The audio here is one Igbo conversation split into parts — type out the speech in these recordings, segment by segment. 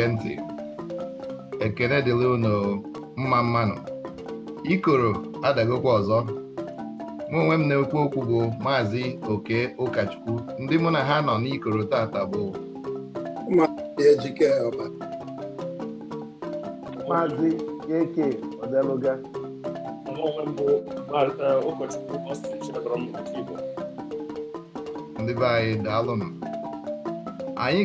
na-ege ntị ekele dịla unu mma mmanụ ikoro adagokwa ọzọ mụ onwe m na-ekwu okwu bụ maazị oke ụkọchukwu ndị mụ na ha nọ n'ikoro tata bụ maazị eke odeluga e, ndị be anyị daalụ m anyị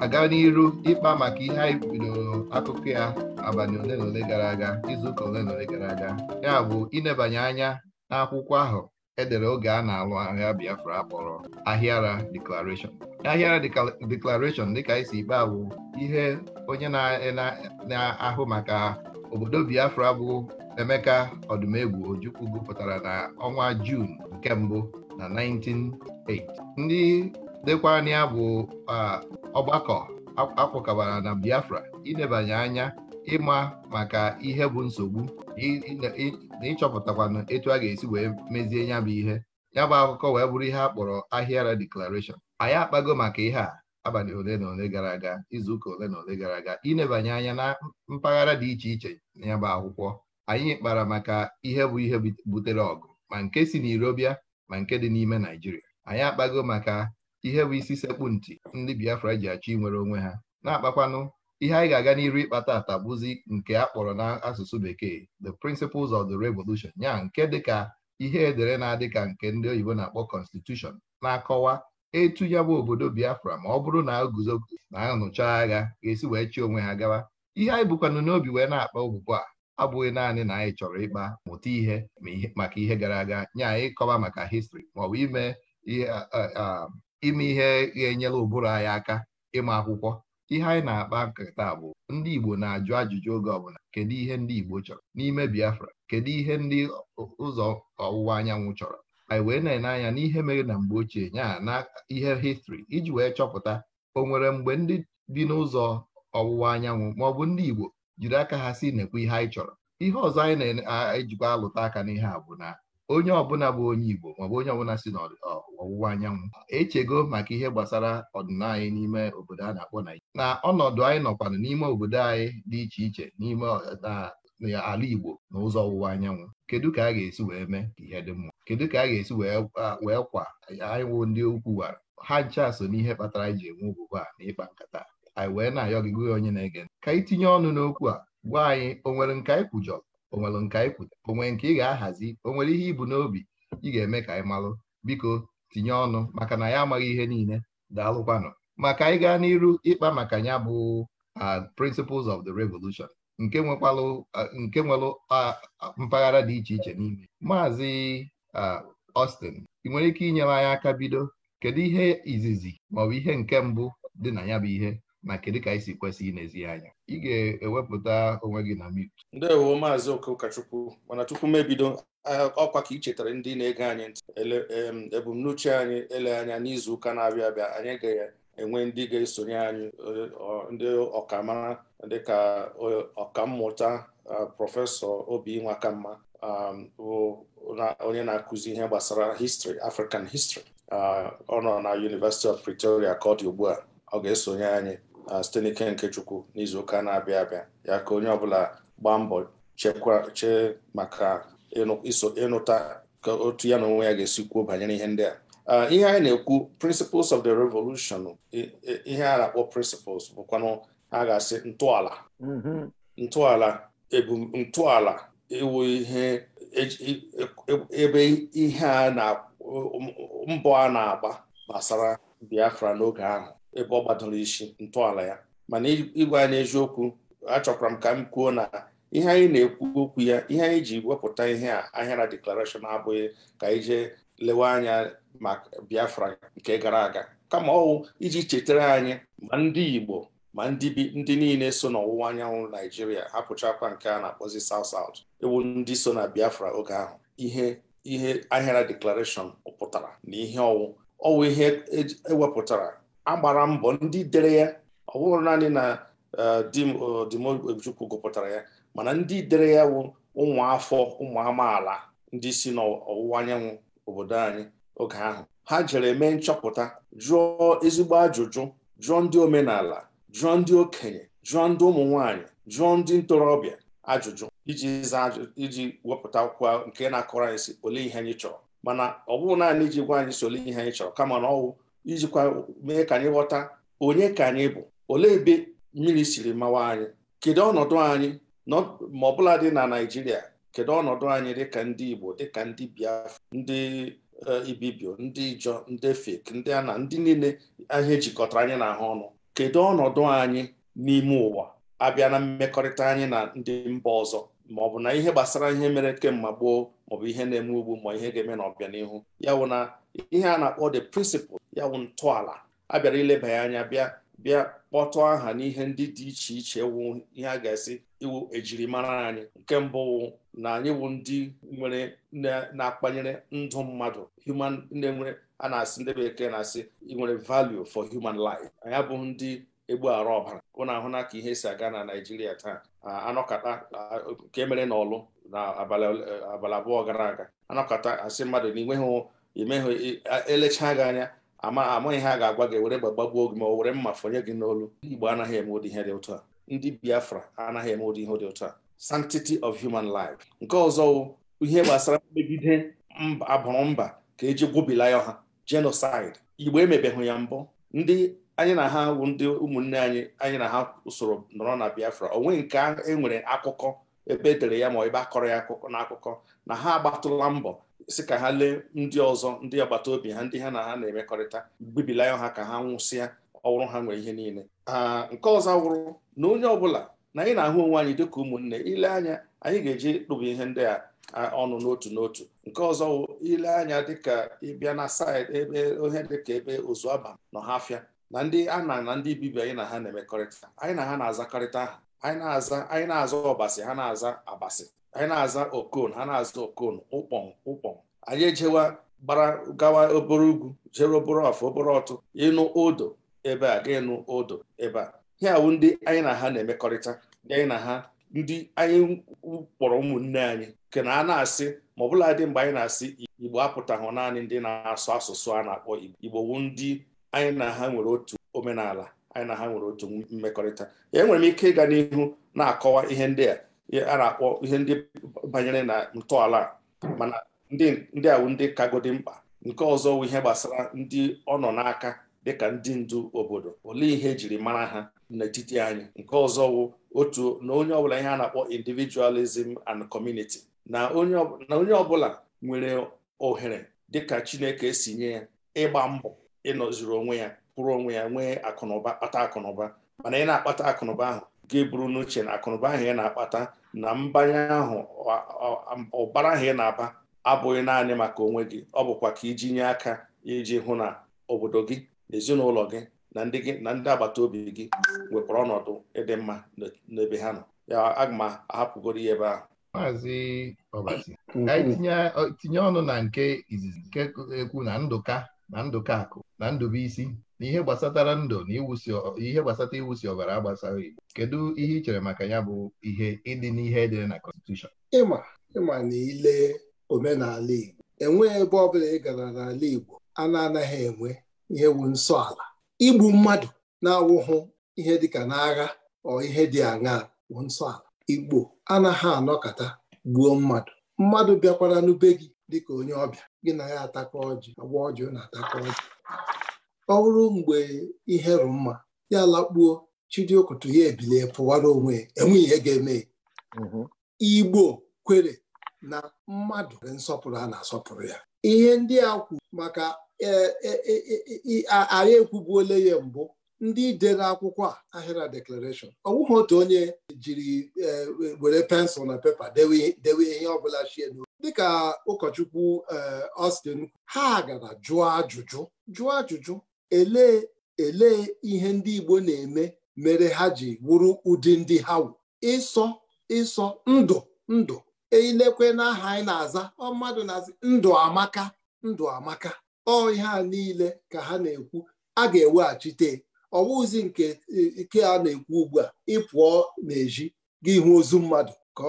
aga n'iru ịkpa maka ihe anyị bidoro akụkọ ya abalị ole na ole gara aga izuụka ole na ole gara aga ya bụ ịnebanye anya n'akwụkwọ ahụ edere oge a na-alụ ahịa Biafra akpọrọ Ahịara Declaration Ahịara Declaration dịka isi si ikpe bụ ihe onye na-ahụ maka obodo Biafra bụ Emeka Ọdụmegwu Ojukwu gụpụtara na ọnwa Juun nke mbụ na 1908 ndị dịkwa na ya bụ ọgbakọ akwụkọbara na Biafra ịnebanye anya ịma maka ihe bụ nsogbu na ịchọpụtakwanụ etu a ga-esi wee mezie ya bụ ihe ya bụ akụkọ wee bụrụ ihe a kpọrọ Ahịara anyị akpago maka ihe a abalị ole na ole gara aga izuụka ole na ole gara aga ịnebanye anya na mpaghara dị iche iche ya bụ akwụkwọ anyị kpara maka ihe bụ ihe butere ọgụ ma nke si n'Irobịa ma nke dị n'ime Naijiria anyị akpago maka ihe bụ isi sekpu ntị ndị Biafra ji achọ inwere onwe ha na-akpakwanụ ihe anyị ga-aga n'iru ịkpata atabụzi nke a kpọrọ n'asụsụ bekee the principles of the revolution ya nke dịka ihe edere na-adị ka nke ndị oyibo na-akpọ constitution na-akọwa etu ya bụ obodo Biafra ma ọ bụrụ na guzo na anụcha agha ga-esi wee chi onwe ha gawa ihe anyị bụkwanụ n'obi wee na-akpa ogbugbu a abụghị naanị na anyị chọrọ ịkpa mụta ihe maka ihe gara aga nye anyị kọwa maka histri maọbụ ime ihe ime ihe ga-enyere ụbụrụ anyị aka ịma akwụkwọ ihe anyị na-akpa nkata bụ ndị Igbo na-ajụ ajụjụ oge ọbụla kedu ihe ndị Igbo chọrọ n'ime Biafra kedu ihe ndị ụzọ ọwụwa anyanwụ chọrọ anyị wee na-ene anya n'ihe mere na mgbe ochie ya na ihe histri iji wee chọpụta o nwere mgbe ndị dị n'ụzọ ọwụwa anyanwụ ma ọ bụ ndị Igbo jiri aka ha si nekwa ihe anyị chọrọ ihe ọzọ anyị na-ejikwa alụta aka n'ihe a bụ na onye ọbụla bụ onye Igbo maọbụ onye ọbụla si na ọwụwa anyanwụ echego maka ihe gbasara ọdịnala anyị n'ime obodo a na-akpọ Naijiria na ọnọdụ anyị nọkwanụ n'ime obodo anyị dị iche iche n'ime ala Igbo na ụzọ ọwụwa anyanwụ kedu ka a ga-esi wee mee ka ihe dị mma kedu ka a ga-esi wee kwa anyịwụ ndị ukwu wara ha ncha so n'ihe kpatara anyị ji enwe ogbugbo a na ịkpa nkata anyị wee na-ayọ gị onye na-ege ka anyị tinye ọnụ n'okwu a gwa anyị o nwere nke anyị kwujọrọ o nwere nke anyị kwujọrọ o nwere nke ị ga-ahazi o nwere ihe bụ n'obi ị ga-eme ka anyị malụ biko tinye ọnụ maka na ya amaghị ihe niile daalụkwanụ maka anyị gaa n'iru ịkpa maka ya bụ uh, principles of the revolution nke nwekwalụ uh, uh, mpaghara dị iche iche n'ime maazị Austin ị nwere ike inyere anyị aka bido kedu ihe izizi maọbụ ihe nke mbụ dị na ya bụ ihe na kedu ka anyị si kwesị inezi anya ị ga-ewepụta onwe gị na mute ndewo maazị okokachukwu mana tupu m ebido ọkwa ka ị chetara ndị na-ege anyị ntị ebumnuche anyị ele anya n'izu ụka na-abịa abịa anyị ga-enwe ndị ga-esonye anyị e, ndị ọkamara dịka e, ọkammụta prọfesọ obinwa kamma onye na-akụzi ihe gbasara histri African histri ọ nọ na University of Pretoria ka ọ dị ugbu a ọ ga-esonye anyị site n'ike nke Chukwu n'izuụka na-abịa abịa ya ka onye ọbụla gbaa mbọ chekwa chee maka ịnụta ka otu ya na onwe ya ga-esi kwuo banyere ihe ndị a ihe anyị na-ekwu principles of the revolution ihe a na-akpọ principles bụkwanụ a ga-asị ntọala mm-hmm. ntọala ntọala iwu ihe e, e, e, ebe ihe a na mbọ a na-agba gbasara Biafra n'oge ahụ ebe ọ gbadoro isi ntọala ya mana ịgwa anyị eziokwu achọkwara m ka m kwuo na ihe anyị na-ekwu okwu ya ihe anyị ji wepụta ihe a ahịara deklarashọn abụghị ka anyị jee lewe anya ma Biafra nke gara aga kama ọwụ iji chetara anyị ma ndị Igbo ma ndị bi ndị niile so n'ọwụwa anyanwụ Naijiria hapụchakwa nke a na-akpọzi South South ewu ndị so na Biafra oge ahụ ihe ihe ahịara deklarashọn pụtara na ihe ọwụ ọwụ ihe ewepụtara e agbara mbọ ndị dere ya ọ bụrụ naanị na e, dimojukwu gụpụtara ya mana ndị dere ya wụ ụmụ afọ ụmụ amaala ndị si n'ọwụwa anyanwụ obodo anyị oge ahụ ha jere mee nchọpụta jụọ ezigbo ajụjụ jụọ ndị omenala jụọ ndị okenye jụọ ndị ụmụ nwanyị jụọ ndị ntorobịa ajụjụ iji zaa iji wepụta akwụkwọ nke na-akọrọ anyị si ole ihe anyị chọrọ mana ọ bụghị naanị iji gwa anyị si ole ihe anyị chọrọ kama na ọwụ ijikwa mee ka anyị ghọta onye ka anyị bụ olee ebe mmiri siri mawa anyị kedu ọnọdụ anyị ma ọbụla dị na Naịjirịa kedu ọnọdụ anyị dịka ndị Igbo dịka ndị Biafra ndị e, Ibibio ndị jọ ndị fek ndị Ana ndị niile ahịa ejikọtara anyị na ahụ ọnụ kedu ọnọdụ anyị n'ime ụwa abịa na mmekọrịta anyị na ndị mba ọzọ ma ọ bụ na ihe gbasara ihe mere kemgbe gboo maọbụ ihe na-eme ugbu ma ihe ga-eme n'ọbịanihu ya bụ na ihe a na-akpọ the principle ya wụ ntọala a bịara ileba ya anya bịa bịa kpọtụ aha n'ihe ndị dị iche iche wụ ihe a ga-esi iwu ejirimara anyị nke mbụ wụ na anyị wụ ndị nwere na-akpanyere ndụ mmadụ human ndị nwere a na-asị ndị bekee na-asị nwere value for human life anyị abụghị ndị egbu arụ ọbara ahụ na ka ihe si aga na Naịjirịa taa anọkata nke mere n'ọlụ na abalị abụọ gara aga anọkata asị mmadụ na ịnweghị imehụ elechaa gị anya amaghị ha ga-agwa gị were gbagbagbuo gị ma were mma fọnye gị n'olu igbo anaghị eme ụdị ihe dị ụtọ a ndị biafra anaghị eme ụdị ihe dị ụtọ a sanctity of human life nke ọzọ ihe gbasara mmegide abụrụ mba ka eji gwobila ya ha genocide igbo emebeghị ya mbụ ndị anyị na ha wụ ndị ụmụnne anyị anyị na ha usoro nọrọ na biafra onwe nke enwere akụkọ ebe edere ya ma ebe akọrọ ya akụkọ na akụkọ na ha agbatụla mbọ si ka ha lee ndị ọzọ ndị agbata obi ha ndị ha na ha na-emekọrịta gbibilaya ha ka ha nwụsịa ọwụrụ ha nwee ihe niile nke ọzọ wụrụ na onye ọbụla na anyị na-ahụ onwe anyị dịka ụmụnne ile anya anyị ga-eji kpụba ihe ndị a ọnụ n'otu n'otu nke ọzọ wụ ile anya dịka ịbịa na saịdị ebe ohe dịka ebe ozuaba nọ ha afịa na ndị ana na ndị bibi anyị na ha na-emekọrịta anyị na ha na-azakọrịta aha anyị na-aza anyị na-aza ọbasị ha na-aza abasị anyị na-aza okon ha na-aza okon ụkpọn ụkpọn anyị ejewa gbara gawa obere ugwu jere obere ọfụ obere ọtụ ịnụ odo ebe a ga ịnụ odo ebe a he awụ ndị anyị na ha na-emekọrịta anyị na ha ndị anyị kpọrọ ụmụnne anyị nke na a na-asị ma ọbụla dị mgbe anyị na-asị igbo apụtahụ naanị ndị na-asụ asụsụ a na-akpọ igbo igbo wu ndị anyị na ha nwere otu omenala anyị na ha nwere otu mmekọrịta enwere m ike ịga n'ihu na-akọwa ihe ndị a a na-akpọ ihe ndị banyere na ntọala mana ndị awụ ndị kagodi mkpa nke ọzọ wụ ihe gbasara ndị ọ nọ n'aka dịka ndị ndu obodo olee ihe ejiri mara ha n'etiti anyị nke ọzọ wụ otu na onye ọbụla ihe a na-akpọ individualism and community na onye ọbụla nwere ohere dịka Chineke si nye ya ịgba mbọ ịnọziri onwe ya kwụrụ onwe ya nwee akụnụba kpata akụnụba mana ị na-akpata akụnụba ahụ ga-eburu n'uche na akụnụba ahụ ya na-akpata na mbanye ahụ ụbara ahụ ị na-aba abụghị naanị maka onwe gị ọ bụkwa ka iji nye aka iji hụ na obodo gị na ezinụlọ gị na ndị gị na ndị agbata obi gị wepụrụ ọnọdụ ịdị mma n'ebe ha nọ ya aga m ahapụgoro ya ebe ahụ maazị tinye ọnụ na nke izizi nke ekwu na ndụka na Ndụkakụ na Ndụbụisi na ihe gbasatara ndụ na ihe gbasata iwusi ọbara agbasara Igbo kedu ihe ị chere maka ya bụ ihe ịdị n'ihe edere na kọnstitushọn ịma ịma na ile omenala Igbo enweghị ebe ọbụla ị gara n'ala Igbo a na-anaghị enwe ihe wu nsọ ala igbu mmadụ na-awụhụ ihe dịka n'agha ọ ihe dị aṅaa bụ nsọ ala Igbo anaghị anọkọta gbuo mmadụ mmadụ bịakwara n'ube gị dịka onye ọbịa gị na ya atakọ ọjị agwa ọjị na atakọ ọjị ọ bụrụ mgbe ihe rụ mma ya lakpuo chidiokoto ya ebilie pụwara onwe ya ihe ga-eme mm-hmm. igbo kwere na mmadụ nsọpụrụ a na-asọpụrụ ya ihe ndị a kwu maka ahịa e, e, e, ekwubuole ya mbụ ndị dere akwụkwọ a ahịra deklarashọn ọ bụghị otu onye jiri were pensụl na pepa dewe ihe ọ bụla chie dịka ụkọchukwu ọstin eh, ha gara jụọ ajụjụ jụọ ajụjụ elee elee ihe ndị Igbo na-eme mere ha ji wuru ụdị ndị ha wụ ịsọ ịsọ ndụ ndụ eilekwe n'aha anyị na-aza ọ mmadụ na-aza ndụ amaka ndụ amaka ọ ihe a niile ka ha na-ekwu a ga-eweghachite ọwụzi nke ike a na-ekwu ugbu a ịpụọ n'ezi gị hụ ozu mmadụ ka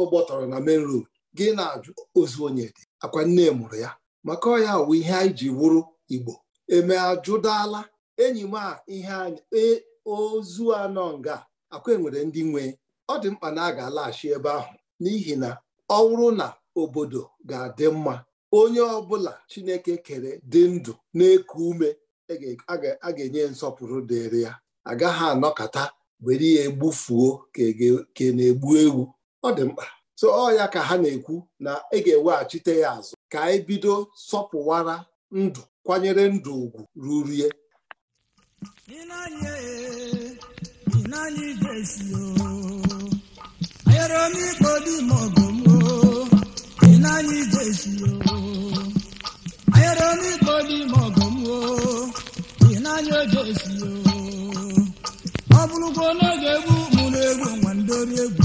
ọ gbọtọrọ na main road gị na-ajụ ozu onye dị akwa nne mụrụ ya maka ọ wụ ihe anyị ji wụrụ igbo eme ajụdala enyi m a ihe anyị e, ozu anọ nga akwa enwere ndị nwe ọ dị mkpa na a ga-alaghachi ebe ahụ n'ihi na ọ wụrụ na obodo ga-adị mma onye ọbụla chineke kere dị ndụ na-eku ume e a ga-enye nsọpụrụ dịrị ya agaghị anọkata were ya egbufuo ka e na-egbu ewu ọ dị mkpa so ọ ya ka ha na-ekwu na ị e ga-eweghachite ya azụ ka anyị e bido sọpụwara ndụ kwanyere ndụ ugwu rurie ọ bụrụkwa n'oge egwu mụrụ egwu nwa ndị egwu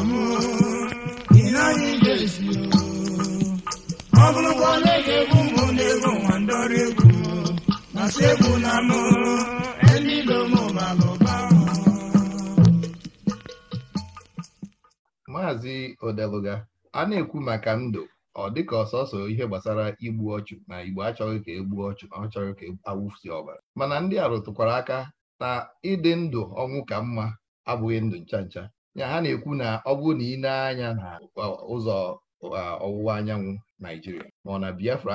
maazị odeluga a na-ekwu maka ndụ ọ dịka ọsọsọ ihe gbasara igbu ọchụ na igbo achọghị ka egbu ọchụ na ọchọghị ka awụfusi ọbara mana ndị a rụtụkwara aka na ịdị ndụ ọnwụ ka mma abụghị ndụ ncha ncha ya ha na-ekwu na ọ bụrụ na ị na-anya na ụzọ ọwụwa anyanwụ Naijiria ma ọ na Biafra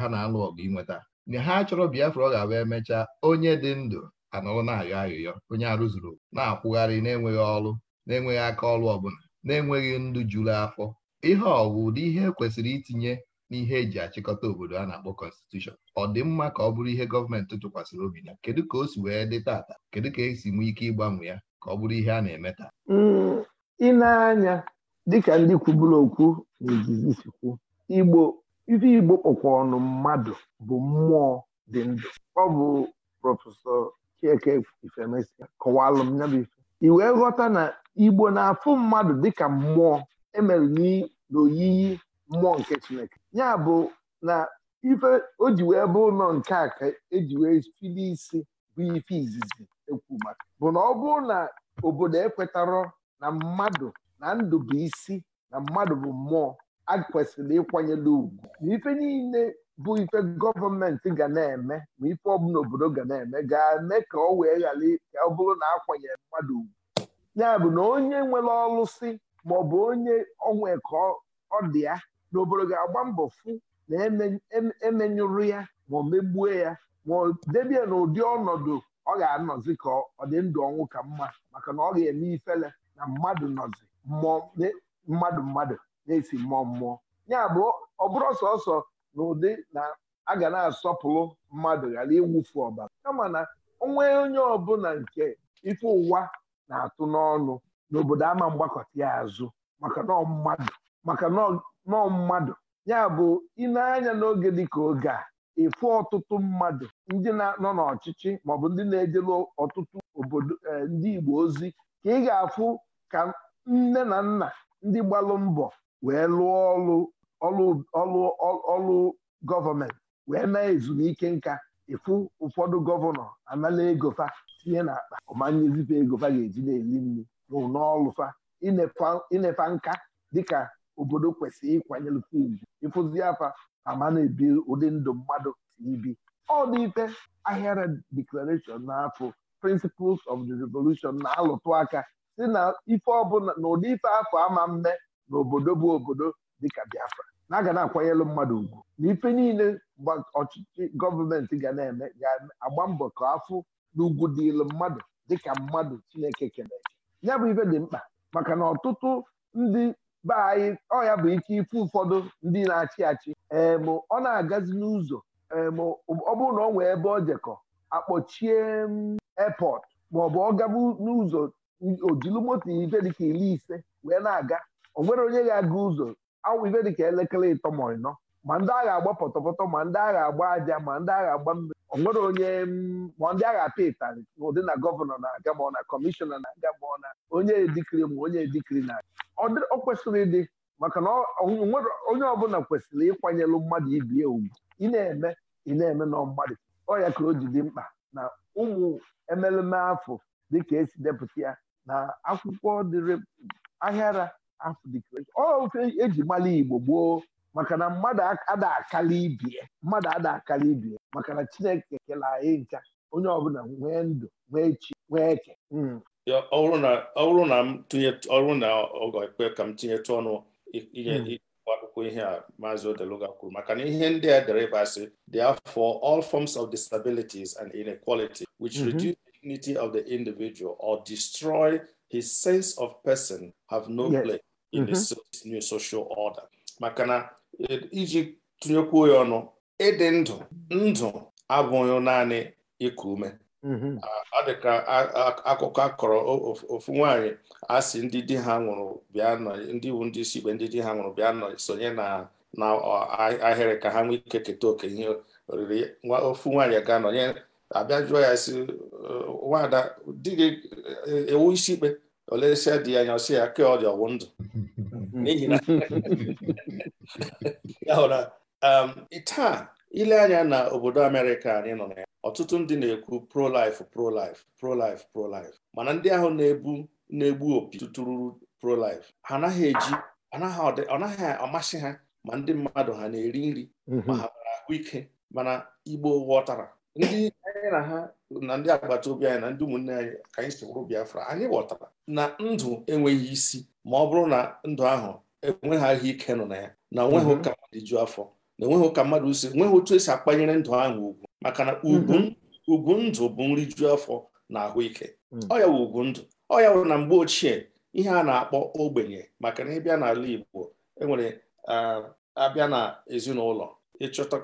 ha na-alụ ọgụ inweta mgbe ha chọrọ Biafra ọ ga-abụ emechaa onye dị ndụ anọrọ na-ayọ ayọyọ onye arụzuru na-akwụgharị na-enweghị ọrụ na-enweghị aka ọrụ ọbụla na-enweghị ndụ juru afọ ihe ọwụ ụdị ihe kwesịrị itinye n'ihe eji achịkọta obodo a na-akpọ kọnstitushọn ọ dị mma ka ọ bụrụ ihe gọọmenti tụkwasịrị obi na kedu ka o si wee dị tata kedu ka esi nwee ike ịgbanwe ya ka ọ bụrụ ihe a na-eme taa hmm, ị anya dịka ndị kwuburu okwu na Igbo ife igbo kpọkwa ọnụ mmadụ bụ mmụọ dị ndụ ọ bụ prọfesọ chieke ifemesia kọwalụ m ya bụ ife i wee ghọta na igbo na-afụ mmadụ dịka mmụọ emere n'oyiyi mmụọ nke chineke ya bụ na ife o ji wee bụ ụlọ nke a ka eji wee fili isi bụ ife izizi ekwu maka bụ na ọ bụrụ na obodo ekwetarọ na mmadụ na ndụ bụ isi na mmadụ bụ mmụọ a kwesịrị ịkwanyere ugwu na ife niile bụ ife gọọmenti ga na-eme ma ife ọbụla obodo ga na-eme ga-eme ka ọ wee ghara ka ọ bụrụ na akwanyere mmadụ ugwu ya bụ na onye nwere ọlụsị maọbụ onye onwe ka ọ dị ya na obodo ga-agba mbọ fụ na emenyụrụ e, e ya ma megbue ya ma debie na ụdị ọnọdụ ọ ga-anọzi ka ọ dị ndụ ọnwụ ka mma maka na ọ ga-eme ifele na mmadụ nọzi mmụọ mmadụ mmadụ na-esi mmụọ mmụọ ya bụ ọ bụrụ sọsọ na ụdị na a ga na-asọpụrụ mmadụ ghara ịwụfu ọbara kama na onwe onye ọbụla nke ife ụwa na-atụ n'ọnụ n'obodo ama mgbakọta ya azụ maka nọ mmadụ maka mmadụ ya bụ ịneanya n'oge dịka oge a efu ọtụtụ mmadụ ndị nọ n'ọchịchị maọbụ ndị na-ejelu ọtụtụ obodo eh, ndị Igbo ozi ka ị ga-afụ ka nne na nna ndị gbalụ mbọ wee lụọ ọlụ ọlụ ọlụ gọọmenti wee na ezumike nka ịfụ ụfọdụ gọvanọ anala egofa tinye n'akpa ọmanyezipe egofa ga-eji na-eli nri n'ọlụfa inefa nka dịka obodo kwesịrị ịkwanyere ugwu ịfụzi afa ama na-ebi ụdị ndụ mmadụ ibi ọ dị ife ahịara declaration n'afọ principles of the revolution na-alụtụ aka si na ife ọbụla na ụdị ife afọ ama mme n'obodo bụ obodo dịka Biafra na aga na-akwanyelụ mmadụ ugwu na ife niile ọchịchị gọọmenti ga na-eme ga-agba mbọ ka afụ n'ugwu dịlụ mmadụ dịka mmadụ Chineke kene ya bụ ibe dị mkpa maka na ọtụtụ ndị be anyị ọ ya bụ ike ife ụfọdụ ndị na-achị achị em ọ na-agazi n'ụzọ em ọ bụrụ na ọ nwee ebe ọ jekọ akpọchie airport maọbụ ọ gaba n'ụzọ ojilu moto ife dịka iri ise wee na-aga onwere onye ga-aga ụzọ awụ dị dịka elekere ịtọ ma ịnọ ma ndị agha agba pọtọpọtọ ma ndị agha agba aja ma ndị agha agba mmiri onwere onye ma ndị agha apịa ịtarị ụdị na gọvanọ na-aga ma ọ na kọmishọna na-aga ma ọ na onye edikiri ma onye edikiri na ọ kwesịrị ịdị maka na onye ọbụla kwesịrị ịkwanyelụ mmadụ ibi ya ugwu ị na-eme ị na-eme na mmadụ ọ ya ka o ji dị mkpa na ụmụ emeleme afọ dịka esi depụta ya na akwụkwọ dịrị ahịara ọ eji mala Igbo gboo maka na mmadụ ada akala ibie mmadụ ada akala ibie maka na Chineke kela anyị ncha onye ọbụla nwee ndụ nwee chi nwee eke hmm. ọ bụrụ na m tinye ọrụ na ọgọ ekpe ka m tinyetụ ọnụ ihe hmm. akwụkwọ ihe a maazị Odeluga kwuru maka na ihe ndị a dere ebe asị for all forms of disabilities and inequality which mm-hmm. reduce the dignity of the individual or destroy his sense of person have no place in the mm-hmm. new social order maka na e, iji tụnyekwuo ya ọnụ ịdị ndụ ndụ abụghị naanị ịkụ ume mm-hmm. ọ dị ka akụkọ akọrọ ofu nwanyị a sị ndị di ha nwụrụ bịa nọ ndị iwu ndị isi ikpe ndị di ha nwụrụ bịa nọ sonye na na ahịrị ka ha nwee ike keta oke ihe oriri ofu nwaanyị ga nọnye abịa jụọ ya si nwada di gị e, ewu isi ikpe Olesia dị anya ọsị ya kee ọ dị ọwụ ndụ n'ihi na ya taa ile anya na obodo Amerịka anyị nọ na ya ọtụtụ ndị na-ekwu pro-life pro-life pro-life mana ndị ahụ na-ebu na-egbu opi tụtụrụ pro-life ha anaghị eji ọ naghị amasị ha ma ndị mmadụ ha na-eri nri mhm. ma ha ahụike mana Igbo ghọtara ndị anyị na ha na ndị agbata obi anyị na ndị ụmụnne anyị ka anyị si Biafra anyị ghọtara na ndụ enweghị isi ma ọ bụrụ na ndụ ahụ enweghị ahụ ike nọ na ya na onweghị mhm. ụka mmadụ ju afọ na enweghị ụka mmadụ si enweghị otu esi akpanyere ndụ ahụ ugwu maka na ugwu mhm. ndụ bụ nri ju afọ na ahụike mhm. ọ ya ugwu ndụ ọ ya na mgbe ochie ihe a na-akpọ ogbenye maka na ịbịa n'ala Igbo enwere abịa na ezinụlọ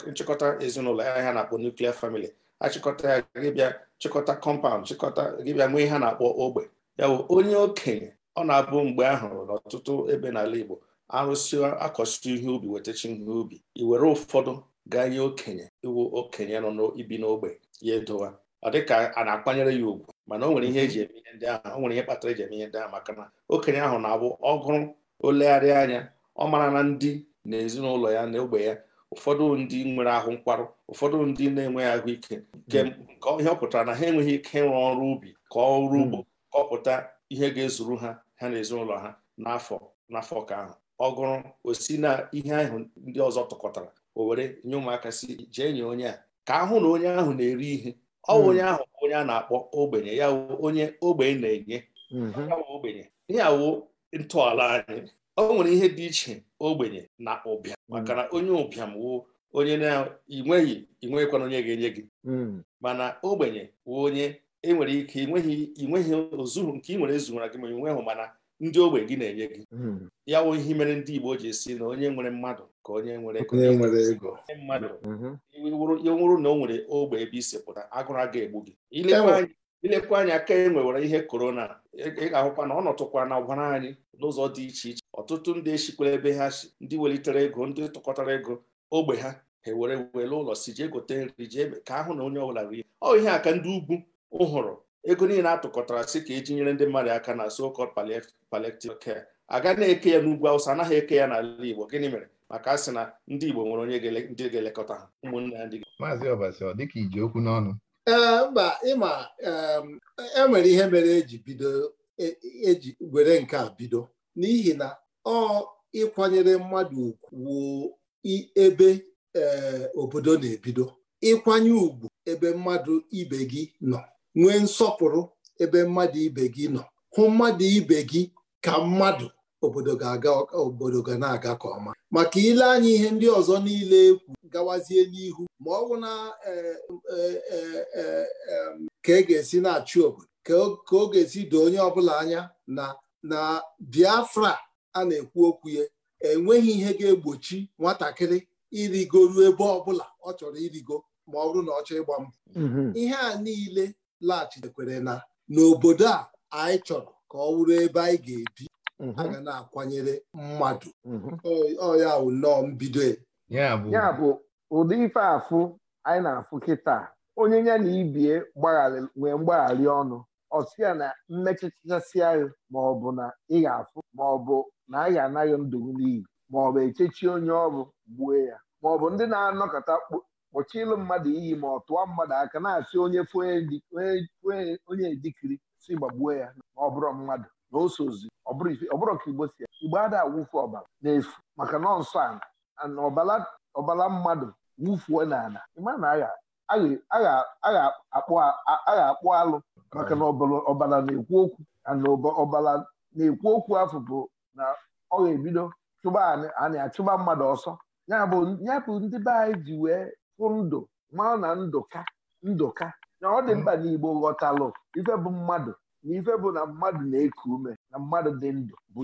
nchịkọta ezinụlọ ya ha na-akpọ nuklia famili achịkọta ya gịbịa chịkọta kọmpaụnd chịkọta gịbịa nwee ihe na-akpọ ogbe ya bụ onye okenye ọ na-abụ mgbe a hụrụ n'ọtụtụ ebe n'ala Igbo arụsị akọsịtụ ihe ubi wetachi ihe ubi i were ụfọdụ gaa ihe okenye iwu okenye nọ n'ibi n'ogbe ya edowa ọ dịka a na-akwanyere ya ugwu mana o nwere ihe eji eme ihe ndị ahụ o nwere ihe kpatara eji eme ihe ndị ahụ maka na okenye ahụ na-abụ ọgụrụ olegharị anya ọ mara na ndị na ezinụlọ ya na ogbe ya ụfọdụ ndị nwere ahụ nkwarụ ụfọdụ ndị na-enweghị ahụike nke hmm. ihe ọ pụtara na ha enweghị ike ịrụ ọrụ ubi ka ọrụ hmm. ugbo kọpụta ihe ga-ezuru ha ha na ezinụlọ ha n'afọ n'afọ ka ahụ ọ gụrụ osi na ihe ahụ ndị ọzọ tụkọtara o were nye ụmụaka si jee nye onye a ka ahụ na onye ahụ na-eri ihe ọ bụ hmm. onye ahụ onye a na-akpọ ogbenye ya onye ogbenye na-enye ogbenye ya wụ ntọala anyị o nwere ihe dị iche ogbenye na ụbịa mm. maka na onye ụbịam wụ onye na-inweghị inweghịkwana onye ga-enye gị mm. mana ogbenye wụ onye enwere ike inweghị ozuru nke ị nwere ezuwara gị ma inweghị mana ndị ogbe gị na-enye gị mm. ya wụ ihe mere ndị Igbo ji esi na onye nwere mmadụ ka onye nwere ego mmadụ ya mm-hmm. nwụrụ na o nwere ogbe ebe isi pụta agụrụ aga egbu gị ilekwa anya ka e nwewere ihe korona ị ga-ahụkwa na ọ nọtụkwa na ọgwara anyị n'ụzọ dị iche iche ọtụtụ ndị esikwere ebe ha si ndị welitere ego ndị tụkọtara ego ogbe ha ha were wele ụlọ si jee gote nri jee ka ahụ na onye ọbụla rie ọ ihe aka ndị ugwu ụhụrụ ego niile atụkọtara si ka eji nyere ndị mmadụ aka na so-called palliative care aga na-eke ya n'ugwu awụsa anaghị eke ya n'ala igbo gịnị mere maka a sị na ndị igbo nwere onye ndị ga-elekọta ha ụmụnne ya ndị maazị ọbasi ọ dịka iji okwu n'ọnụ ee mba ịma e nwere ihe mere eji bido eji e were nke a bido n'ihi na ọ ịkwanyere mmadụ ugwu ebe eh, obodo na-ebido ịkwanye ugwu ebe mmadụ ibe gị nọ nwee nsọpụrụ ebe mmadụ ibe gị nọ hụ mmadụ ibe gị ka mmadụ obodo ga-aga na-aga ka ọma maka ile anya ihe ndị ọzọ niile ekwu gawazie n'ihu ma ọ bụ na eh, eh, ka e ga-esi na-achị obodo ka ọ ga-esi doo onye ọbụla anya na na Biafra a na-ekwu okwu ya enweghị ihe ga-egbochi nwatakịrị irigoru ebe ọbụla ọ chọrọ irigo ma ọ bụrụ na ọ chọọ ịgba mbọ mhm. ihe a niile laghachitekwere na n'obodo a anyị chọrọ ka ọ wụrụ ebe anyị ga-ebi mhm. a ga na-akwanyere mmadụ mhm. ọ nnọọ mbido ya bụ ụdị ife anyị na-afụ kịta onye ya na ibie nwee mgbagharị ọnụ ọsịa na mmechachasịa maọbụ na ị ga-afụ maọbụ na a ga-anaghị ndụgụ n'iyi maọbụ echechi onye ọrụ gbuo ya maọbụ ndị na-anọkọta kpọchi ịlụ mmadụ iyi ma ọ tụọ mmadụ aka na-asị onye onye dikiri si gbagbuo ya ma ọ bụrụ mmadụ na osozi ọ ka igbo si ya igbo ada awụfu ọbara n'efu maka nọọsụ ana na ọbala mmadụ wụfuo n'ala ịma na agha a ga-akpụ alụ maka na ọbara na-ekwu okwu na ọbara na-ekwu okwu afọ bụ na ọ ga-ebido chụba anyị achụba mmadụ ọsọ ya bụ ndị be anyị ji wee fụ ndụ mara na ndụka ndụka na ọ dị mkpa n'Igbo ghọtalụ ife bụ mmadụ na ife bụ na mmadụ na-eku ume na mmadụ dị ndụ bụ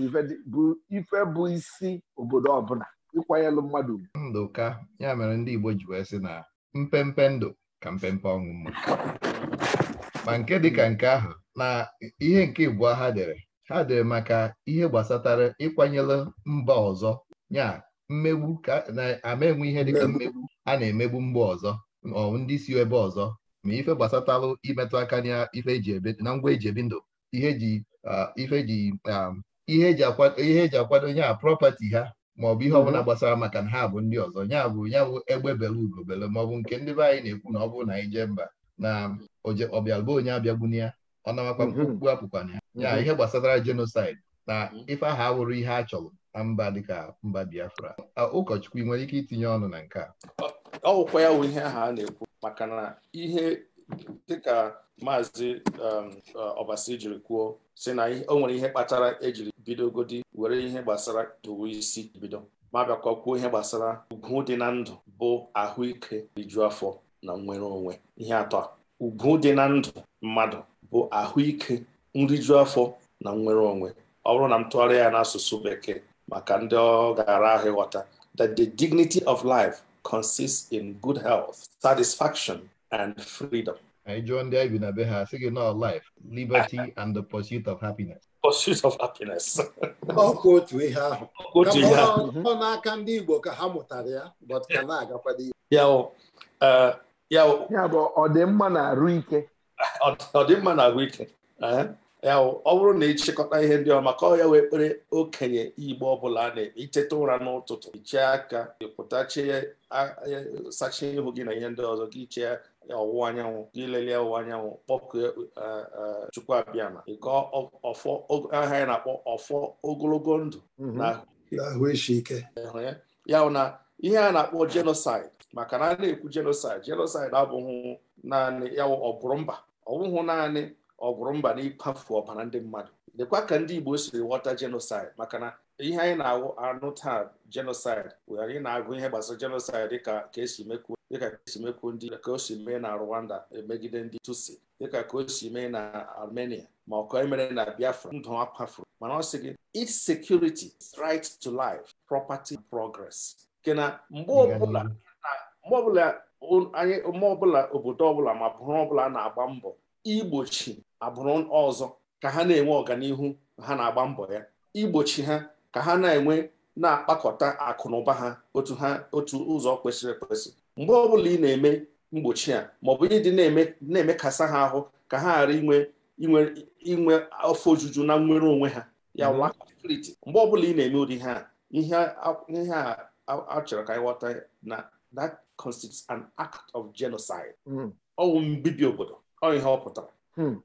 ife bụ isi obodo ọbụla ịkwanyelụ mmadụ ume ndụka ya mere ndị Igbo ji wee sị na mpempe ndụ ka mpempe ọnwụ mma ma nke dịka nke ahụ na ihe nke ịbụọ ha dere ha dere maka ihe gbasatara ịkwanyere mba ọzọ ya mmegbu ka na-ama enwe ihe dịka mmegbu a na-emegbu mba ọzọ ndị si ebe ọzọ ma ife gbasatarụ imetụ aka na ife eji ebe na ngwa eji ebi ndụ ihe eji ihe eji akwado ihe eji akwado ha bụ ihe ọbụla mhm. gbasara maka na ha bụ ndị ọzọ ya bụ ya bụ egbe bele ugobele maọbụ nke ndị be anyị na-ekwu na ọ bụrụ na anyị jee mba na ọbịalụba onye abịagbuna ya ọ namakwa mkpukpu mhm. apụkwana ya mhm. ya ihe gbasatara jenosaid na ife ahụ awụrụ ihe a chọrọ na mba dịka mba Biafra ụkọchukwu ị nwere ike itinye ọnụ na nke a ọwụkwa ya bụ ihe aha a na-ekwu maka na ihe dịka maazị ọbasi um, uh, jiri kwuo si na o nwere ihe kpatara ejiri bidogodi were ihe gbasara towe isi bido ma bịakwa kwuo ihe gbasara ugwu dị na ndụ bụ ahụike riju afọ na nnwere onwe ihe atọ a ugwu dị na ndụ mmadụ bụ ahụike nriju afọ na nnwere onwe ọ bụrụ na m tụgharịa ya n'asụsụ bekee maka ndị ọ gara ahụ ịghọta that the dignity of life consists in good health satisfaction and freedom. I joined the Abeha, singing not life, liberty, and the pursuit of happiness. Pursuit of happiness. Ọ na ọ bụrụ na ịchịkọta ihe ndị ọma ka ọ ya wee kpere okenye Igbo ọbụla a na-eteta ụra n'ụtụtụ ichie aka ịpụtachie sachie ihu gị na ihe ndị ọzọ gị chee ọwụwa anyanwụ ilele ọwụwa anyanwụ kpọkue e, Chukwuabiama ịgọ ọfọ aha ya na-akpọ ọfọ ogologo ndụ mhm. n'ahụ ike ya na ihe a na-akpọ jenosaid maka na a na-ekwu jenosaid jenosaid abụghị naanị ya ọgụrụ mba naanị ọgụrụ mba na ọbara ndị mmadụ lekwa ka ndị Igbo siri ghọta jenosaid maka na ihe anyị na-anụ taa jenosid bụ anyị na-agụ ihe gbasara jenosid dịka ka esi mekwu dịka ka ndị ka o si mee na Rwanda megide ndị Tutsi dịka ka o si mee na Armenia ma ọ ka emere na Biafra ndụ akwafuru mana ọ sị gị its security right to life property progress nke na mgbe ọbụla anyị mgbe ọbụla obodo ọbụla ma bụrụ ọbụla na-agba mbọ igbochi agbụrụ ọzọ ka ha na-enwe ọganihu ha na-agba mbọ ya igbochi ha ka ha na-enwe na-akpakọta akụ na ụba ha otu ha otu ụzọ kwesịrị ekwesị mgbe ọbụla ị na-eme mgbochi a maọbụ dị na-emekasa ha ahụ ka ha ghara inwe inwe afọ ojuju na nnwere onwe ha ya mhm. mgbe ọbụla ị na-eme ụdị ha ihe a achọrọ ka anyị na that constitutes an act of genocide mhm. ọ bụ mbibi obodo ọ ihe ọ pụtara hmm.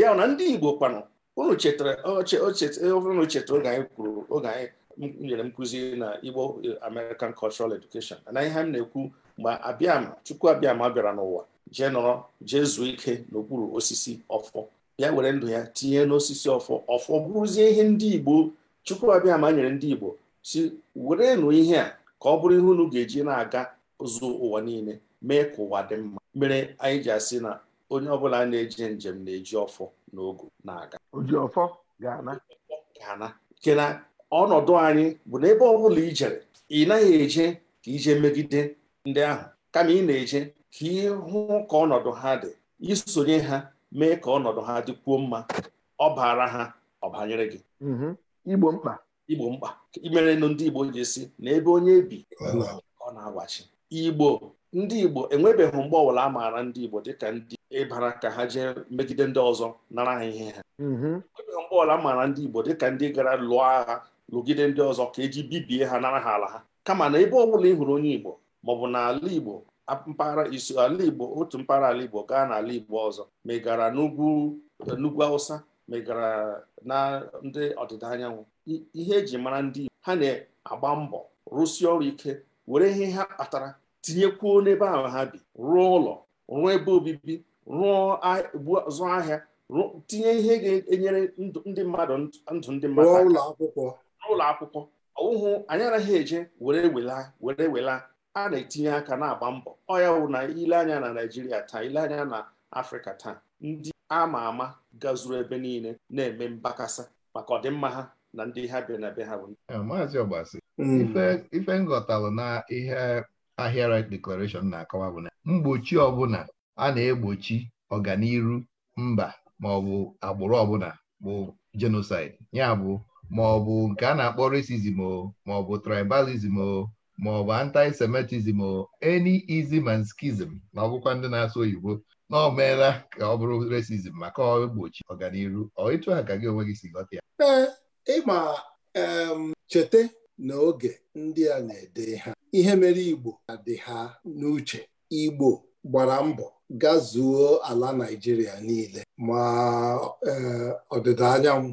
ya na ndị Igbo kpanụ unu chetara ọbụrụ e na chetara oge anyị kwuru oge anyị nyere nkụzi na Igbo e, American Cultural Education na ihe m na-ekwu mgbe abịam Chukwu abịama bịara n'ụwa jee nọrọ jee zuo ike n'okpuru osisi ọfọ ya were ndụ ya tinye n'osisi ọfọ ọfọ bụrụzie ihe ndị Igbo Chukwu abịama nyere ndị Igbo si werenụ ihe a ka ọ bụrụ ihe unu ga-eji na-aga ụzụ ụwa niile mee ka ụwa dị mma mere anyị ji asị na onye ọbụla na-eje njem na-eji ọfọ na na-aga ojiọfọ ga-ana ga-ana nke na ọnọdụ anyị bụ na ebe ọ bụla ijere ị naghị eje ka ije megide ndị ahụ kama ị na-eje ka ị hụ ka ọnọdụ ha dị isonye ha mee ka ọnọdụ ha dịkwuo mma ọbara ha ọbanyere gị mhm. igbo mkpa igbo mkpa imerenụ ndị igbo ji si na ebe onye bi ọ na-agwachi igbo ndị Igbo enwebeghị mgbe ọbụla a maara ndị Igbo dịka ndị ịbara ka ha jee megide ndị ọzọ nara ha ihe ha mhm. enwebeghị mgbe ọbụla a maara ndị Igbo dịka ndị gara lụọ agha lụgide ndị ọzọ ka eji bibie ha nara ha ala ha kama na ebe ọbụla ị hụrụ onye Igbo maọbụ n'ala Igbo mpaghara iso ala Igbo otu mpaghara ala Igbo gaa n'ala Igbo ọzọ megara n'ugwu n'ugwu Awụsa megara na ndị ọdịda anyanwụ ihe eji mara ndị Igbo ha na-agba mbọ rụsie ọrụ ike were ihe ha kpatara tinyekwuo n'ebe ahụ ha bi rụọ ụlọ rụọ ebe obibi rụọ zụ ahịa tinye ihe ga-enyere ndị mmadụ ndụ ndị mmadụ ụlọ akwụkwọ ụlọ akwụkwọ ụhụ anyị anaghị eje were wela were wela a na-etinye aka na-agba mbọ ọ ya wụ na ile anya na Naịjirịa taa ile anya na Afrịka taa ndị ama ama gazuru ebe niile na-eme mbakasa maka ọdịmma ha na ndị ha bịa na be ha bụ eh, maazị ọgbasi hmm. ife nghọtalụ na ihe Ahịa Right Declaration na-akọwa bụ na mgbochi ọbụla a na-egbochi ọganiru mba maọbụ agbụrụ ọbụla bụ jenosid ya bụ maọbụ nke a na-akpọ racism o maọbụ tribalism o maọbụ antisemitism o eni izi and na ọgwụkwa ndị na-asụ oyibo na ọ meela ka ọ bụrụ resizm maka ọ egbochi ọganiru ọ ịtụ ka gị onwe gị si ghọta ya ee ịma cheta na oge ndị a na-ede ha ihe mere Igbo dị ha n'uche Igbo gbara mbọ gazuo ala Naịjirịa niile ma e, ọdịda anyanwụ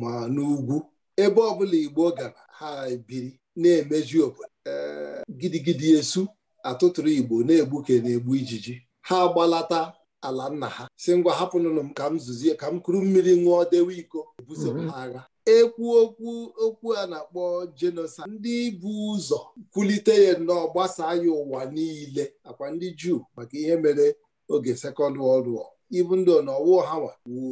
ma n'ugwu ebe ọbụla Igbo gara ha biri na-emeju obodo e, gidigidi esu atụtụrụ Igbo na-egbuke na-egbu ijiji ha gbalata ala nna ha si ngwa hapụnụnụ m ka m zuzie ka m kuru mmiri nwụọ dewe iko ebuso mhm. ha agha ekwu okwu okwu a na-akpọ jenosid ndị bụ ụzọ kwulite ya nnọọ gbasaa ya ụwa niile akwa ndị juu maka ihe mere oge sekọnd wọld wọ ibu ndị ọnọwụ hawa wu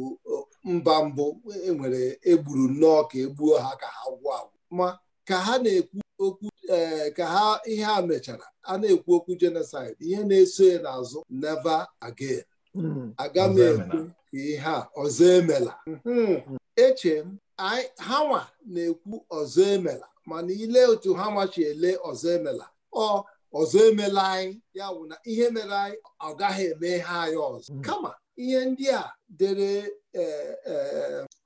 mba mbụ enwere egburu nnọọ ka egbuo ha ka ha gwụ agwụ ma ka ha na-ekwu okwu ee eh, ka ha ihe a mechara a na-ekwu okwu jenosid ihe na-eso ya n'azụ neva agen hmm. aga m ekwu ka ihe a ọzọ emela hmm. eche m hanwa na-ekwu ọzọ emela mana ile otu hanwa chi ele ọzọ emela ọ ọzọ emela anyị ya bụ na ihe mere anyị ọ gaghị eme ha anyị ọzọ hmm. kama ihe ndị a dere e, e,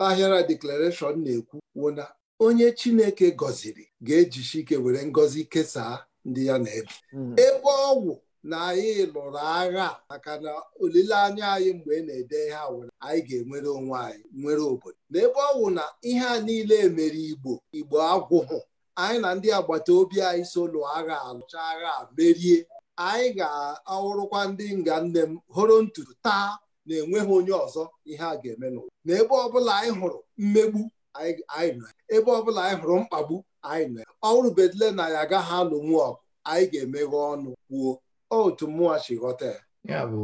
ahịara deklarashọn na-ekwu wụ na onye Chineke gọziri ga-eji chike were ngọzi kesaa ndị ya na-ebi hmm. ebe ọgwụ na anyị lụrụ agha maka na olileanya anyị mgbe ị na-ede ihe were anyị ga-enwere onwe anyị nwere obodo n'ebe ọ wụ na ihe a niile mere igbo igbo agwụhụ anyị na ndị agbata obi anyị so lụọ agha alụcha agha merie anyị ga-awụrụkwa ndị nga nne m hụrụ ntutu taa na-enweghị onye ọzọ ihe a ga-eme n'ụwa na ebe ọbụla anyị hụrụ mmegbu anyị nọ ebe ọbụla anyị hụrụ mkpagbu anyị nọ ọ rubedile na ya agaghị alụ nwa ọgụ anyị ga-emeghe ọnụ kwuo otu mmụọ si ghọta ya bụ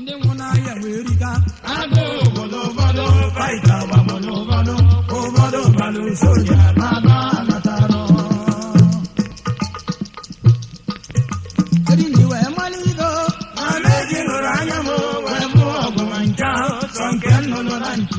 ndị nwụ n'ahịa wee riga agụ obodo ụfọdụ faịta gbagbodo ụfọdụ ụfọdụ balụ soja baba anatara eriri wee mmanụ ido na meji nụrụ anya m wee bụ ọgụ ma nke ahụ sọ nke nnụnụ na ntu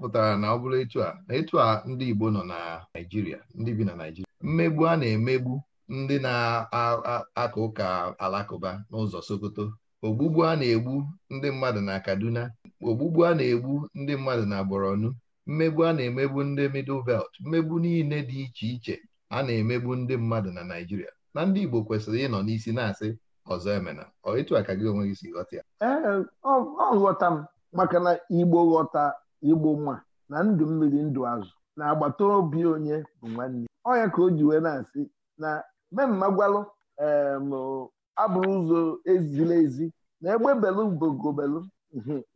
pụtara na ọ bụrụ etu a na etu a ndị Igbo nọ na Naịjirịa ndị bi na Naịjirịa mmegbu a na-emegbu ndị na akụ ụka alakụba n'ụzọ Sokoto ogbugbu a na-egbu ndị mmadụ na Kaduna ogbugbu a na-egbu ndị mmadụ na Borno mmegbu a na-emegbu ndị Middle Belt mmegbu niile dị iche iche a na-emegbu ndị mmadụ na Naịjirịa na ndị Igbo kwesịrị ịnọ n'isi na-asị ọzọ emena ọ etu a ka gị onwe gị si ghọta ya ee ọ ghọta m maka na Igbo ghọta igbo nwa na ndụ mmiri ndụ azụ na agbata obi onye bụ nwanne ọ ka o ji wee na-asị na mmemme gwalụ abụrụ ụzọ ezila ezi na egbebelụ ugogobelụ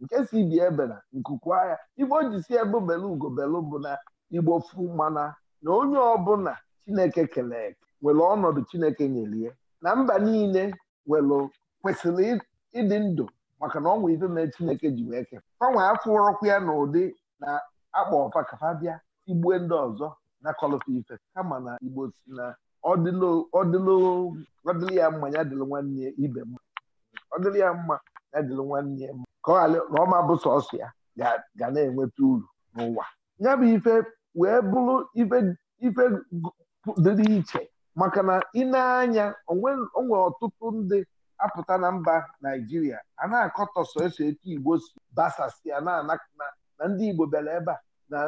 nke si bi ebena nkukwa agha igbo o ji si egbebelụ ugobelụ bụ na igbo fu mana na onye ọbụla chineke kelee nwere ọnọdụ chineke nyere ya na mba niile nwere kwesịrị ịdị ndụ maka na ọnwa ife mere chineke ji wee ke fanwe afọ ọrọkwa ya na ụdị na akpa ọfa ka fa bịa igbue ndị ọzọ na kọlụfa ife kama na igbo si na ọdịlụ ya mma ya dịlụ nwanne ibe mma ọdịlụ ya mma ya dịlụ nwanne mma ka ọ ghara na ọma bụ sọsọ ya ga na-enweta uru n'ụwa ya bụ ife wee bụrụ ife dịrị iche maka na ị na-anya onwe ọtụtụ ndị apụta na mba naijiria a na-akọtọ so esi igbo si basasịa na na ndị igbo bịara ebe a na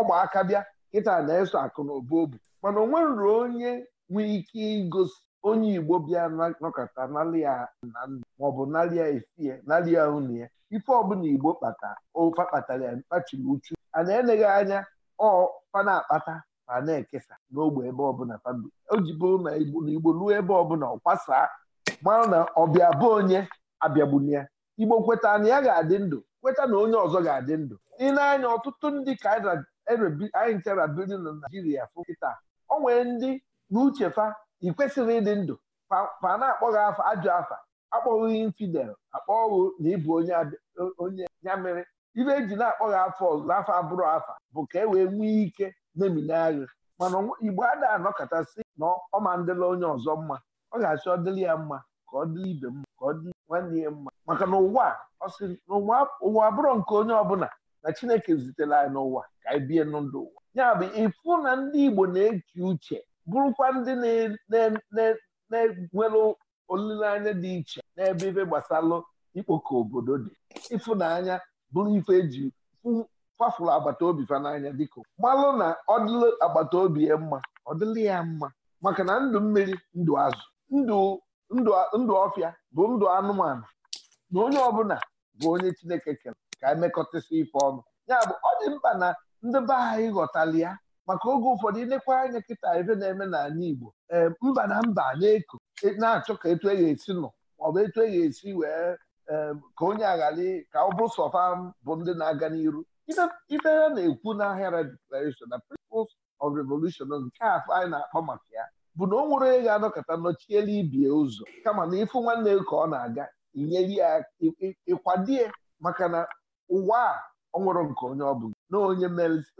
ọgba aka bịa kịta na-eso akụ na obu obu mana onwe nwerụrụ onye nwee ike igosi onye igbo bịa nọkọta nalia na maọbụ nalia ifie nalia unu ya ife ọbụla igbo kpata ofa kpatara ya mkpachiri uchu a na-eneghị anya ọ fa na-akpata ma na-ekesa n'ogbe ebe ọbụla o ji bụrụ na igbo na igbo ruo ebe ọbụla ọ kwasaa mara na ọbịa bụ onye abịagbuna ya igbo kweta na ya ga-adị ndụ kweta na onye ọzọ ga-adị ndụ ị na-anya ọtụtụ ndị ka anyị ntera biri na naijiria fụ o nwere ndị n'uche fa ịdị ndụ fa na-akpọghị afa ajụ afa akpọghị infidel akpọghị na ịbụ onye ya mere ibe eji na-akpọghị afọ n'afọ abụrụ afa bụ ka e wee nwee ike na-eminagha mana igbo a na kachasị na ọma ndịla onye ọzọ mma ọ ga-achọ ọdịrị ya mma ka ọ dịrị ibe mma ka ọ dịrị nwanne ya mma maka na ụwa ọ na ụwa abụrụ nke onye ọbụla na Chineke zitere anyị n'ụwa ka anyị bie n'ndụ ụwa ya bụ ịfụ na ndị Igbo na-eche uche bụrụkwa ndị na-enwere olileanya dị iche n'ebe ife gbasalụ ikpoko obodo dị ịfụnanya bụrụ ife eji fafụrụ agbata obi fa n'anya dịka malụ na ọ dịla agbata obi ya mma ọ dịla ya mma maka na ndụ mmiri ndụ azụ ndụ ndụ ọfịa bụ ndụ anụmanụ na onye ọbụla bụ onye Chineke kere ka emekọtasị ife ọnụ ya bụ ọ dị mkpa na ndị be anyị ghọtara ya maka oge ụfọdụ ilekwa anya kịta ebe na-eme n'ala Igbo ee eh, mba na mba na-eko e na-achọ ka etu e ga-esi nọ maọbụ etu e ga-esi wee eh, ka onye aghara ka ọ bụ sọfa bụ ndị na-aga n'iru ife ya na-ekwu n'ahịa declaration na principles of revolution nke afọ anyị na-akpọ maka ya bụ na onwere nwere onye ga-anọkọta nọchiela ibie ụzọ kama na ịfụ nwanne ka ọ na-aga inyere ya ịkwadie maka na ụwa a ọ nwụrụ nke onye ọ bụla na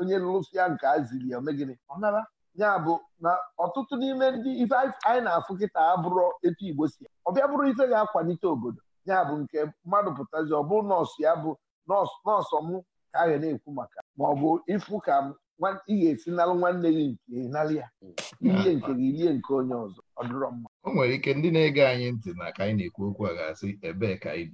onye lụsịa nke a ziri ya megịnị ọ nara ya bụ na ọtụtụ n'ime ndị ife anyị na-afụ kịta abụrụ etu Igbo si ọ bịa bụrụ ife ga-akwalite obodo ya bụ nke mmadụ pụtazi ọ bụ nọọsụ ya bụ nọọsụ m ka a ga na-ekwu maka ma ọ bụ ịfụ ka ị ga-esi nalụ nwanne gị nke nalụ ya hmm. ah, nke ah. gị ilie nke onye ọzọ ọ dịrọ mma o nwere ike ndị na-ege anyị ntị na ka anyị na-ekwu okwu a ga-asị ebee ka anyị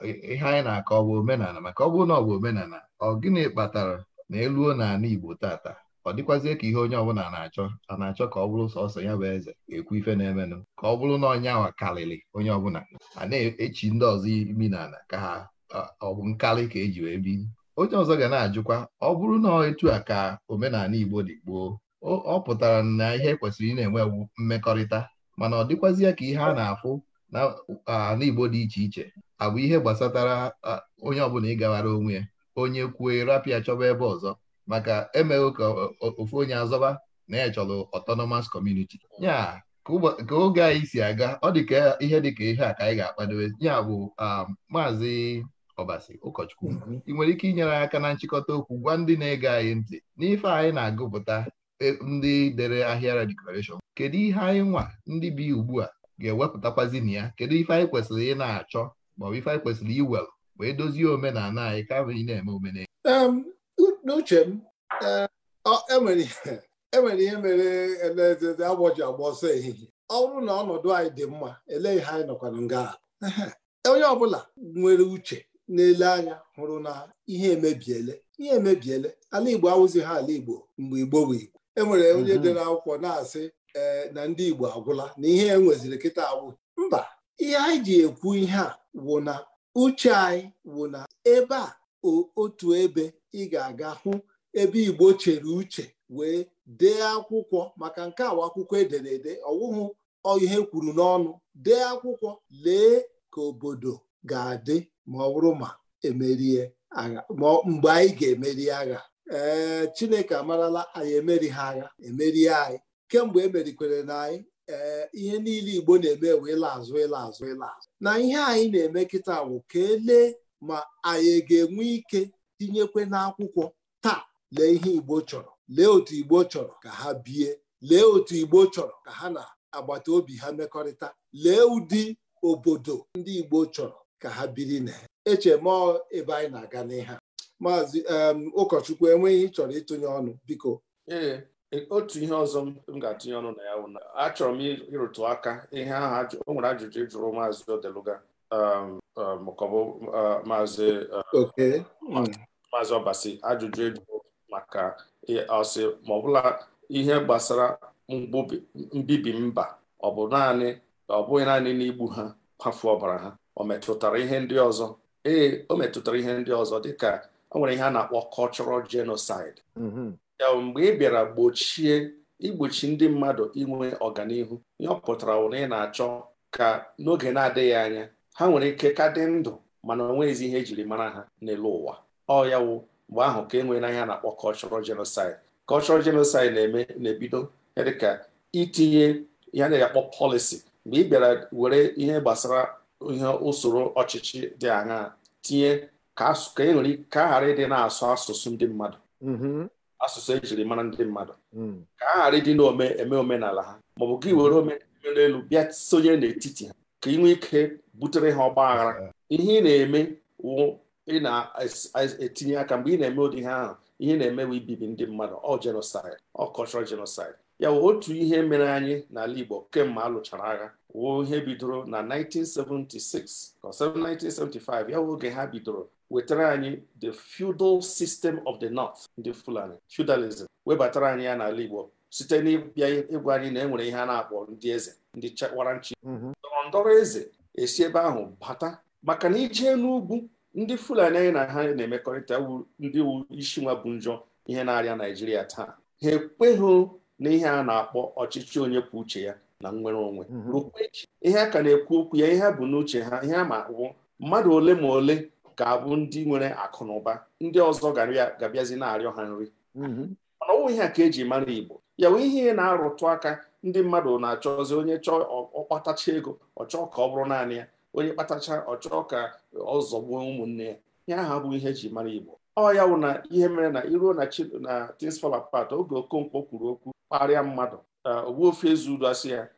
bi ihe anyị na-akọ ọ bụ omenala maka ọ bụrụ na ọ bụ omenala ọ gịnị kpatara na eluo n'ala Igbo tata ọ dịkwazie ka ihe onye ọbụla na-achọ a na-achọ ka ọ bụrụ sọsọ ya bụ eze ekwu ife na-emenụ ka ọ bụrụ na ọnya wa karịrị onye ọbụla a na-echi ndị ọzọ imi n'ala ka ha ọ bụ nkalị ka eji wee biri onye ọzọ ga na-ajụkwa ọ bụrụ na etu a ka omenala Igbo dị gboo ọ pụtara na ihe kwesịrị ị na-enwewu mmekọrịta mana ọ dịkwazịa ka ihe a na-afụ na Igbo dị iche iche abụ ihe gbasatara onye ọbụla ịgawara onwe ya onye kwuo rapịa chọba ebe ọzọ maka emeghị ka ofu onye azọba na ya chọrọ autonomous community ya ka oge anyị si aga ọ dị ka ihe dị ka ihe a ka anyị ga-akpadobe ya bụ um, maazị ọbasi ụkọchukwu ị nwere ike inyere aka na nchịkọta okwu gwa ndị na-ege anyị ntị n'ife anyị na-agụpụta e, ndị dere ahịara deklarashọn kedu ihe anyị nwa ndị bi ugbu a ga-ewepụtakwazi na ya kedu ife anyị kwesịrị ị na-achọ maọbụ ife anyị kwesịrị iwel wee dozie omenala anyị kama ị na-eme omenala n'uche m enwere eh, e e ihe mere elezeze agwọ ji agba ọsọ ehihie ọ bụrụ na ọnọdụ anyị dị mma ele ihe anyị nọkwa nga onye ọbụla nwere uche na-ele anya hụrụ na ihe emebiele ihe emebiele ala Igbo awụzi ha ala Igbo mgbe Igbo bụ Igbo e nwere onye mhm. dị n'akwụkwọ na-asị e, na ndị Igbo agwụla na ihe e nweziri kịta agwụ mba ihe anyị ji ekwu ihe a wụ na uche anyị wụ na ebe a otu ebe ị ga-aga hụ ebe Igbo chere uche wee dee akwụkwọ maka nke awa akwụkwọ edere ede ọwụhụ ihe kwuru n'ọnụ dee akwụkwọ lee ka obodo ga-adị ma ọ bụrụ ma emerie agha ma mgbe anyị ga-emeri agha ee Chineke amarala anyị emeri ha agha emerie anyị kemgbe emerikwere na anyị ee ihe niile Igbo na-eme wee ịla azụ ịla azụ ịla azụ na ihe anyị na-eme kịta bụ ka elee ma anyị ga-enwe ike tinyekwe n'akwụkwọ taa lee ihe Igbo chọrọ lee otu Igbo chọrọ ka ha bie lee otu Igbo chọrọ ka ha na agbata obi ha mmekọrịta lee ụdị obodo ndị Igbo chọrọ ka ha biri na eche ma ebe anyị na-aga n'ihe maazị ụkọchukwu enweghị ịchọrọ ịtụnye ọnụ biko ee e, otu ihe ọzọ m ga-atụnye ọnụ na ya bụ na achọrọ m ịrụtụ aka ihe ahụ o nwere ajụjụ jụrụ maazị odeluga maọbụ maazị maazị ọbasi ajụjụ ejụrụ maka ọsị ma ọbụla ihe gbasara mbibi mba ọ bụ naanị ọ bụghị naanị n'igbu ha kwafu ọbara ha o metụtara ihe ndị ọzọ ee o metụtara ihe ndị ọzọ dịka o nwere ihe a na-akpọ cultural genocide mm-hmm. ya mgbe ị bịara gbochie igbochi ndị mmadụ inwe ọganihu ihe ọ pụtara na ị na-achọ ka n'oge na-adịghị anya ha nwere ike ka dị ndụ mana o nweghịzi ihe ejiri mara ha n'elu ụwa ọ ya mgbe ahụ ka e nwere na ihe na-akpọ cultural genocide cultural genocide na-eme na-ebido dịka itinye ihe a na-akpọ policy mgbe ị bịara were ihe gbasara ihe usoro ọchịchị dị aṅa tinye ka e nwere ka ghara ịdị na-asụ asụsụ ndị mmadụ mm-hmm. asụsụ ejiri mara ndị mmadụ mm. ka a ghara ịdị na-eme omenala ha maọbụ gị were omenala elu bịa sonye n'etiti ha ka ị nwee ike butere ha ọgba aghara ihe ị na-eme wụ ị na-etinye aka mgbe ị na-eme ụdị ihe ahụ ihe na-eme wụ ibibi ndị mmadụ ọ jenosaid ọ cultural jenosaid ya wụ otu ihe mere anyị n'ala Igbo kemgbe a lụchara agha wụ ihe bidoro na 1976 or 1975 ya wụ oge ha bidoro wetara anyị the feudal system of the north ndị fulani feudalism webatara anyị ya n'ala igbo site n'ịbịa ịgwa anyị na enwere ihe a na-akpọ ndị eze ndị chawara nchi mhm. ndọrọ ndọrọ eze esi ebe ahụ bata maka na ije n'ugwu ndị fulani anyị na ha na-emekọrịta ndị wu isi nwa bụ njọ ihe na-arịa naijiria taa ha ekweghị na ihe a na-akpọ ọchịchị onye kwuo uche ya na nnwere onwe mhm. rụkwa echi ihe a ka na-ekwu okwu ya ihe bụ n'uche ha ihe a ma wụ mmadụ ole ma ole ga-abụ ndị nwere akụ na ụba ndị ọzọ ga-abịazi na-arịọ ha nri mhm. mana ọnwụ ihe a ka eji mara Igbo ya wụ ihe na-arụtụ aka ndị mmadụ na-achọzi onye chọọ ọkpatacha ego ọchọọ ka ọ bụrụ naanị ya onye kpatacha ọ ka ọ zọgbuo ụmụnne ya ihe ahụ abụghị ihe eji mara Igbo ọ ya wụ na ihe mere na iruo na things fall apart oge Okonkwo kwuru okwu kparịa mmadụ ofe Ezeudo asị ya